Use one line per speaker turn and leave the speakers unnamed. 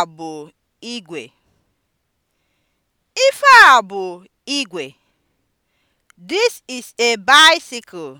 a bụ igwe! Ife a bụ igwe! This is a bicycle.